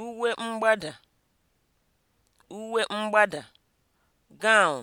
uwe mgbada uwe mgbada (gown)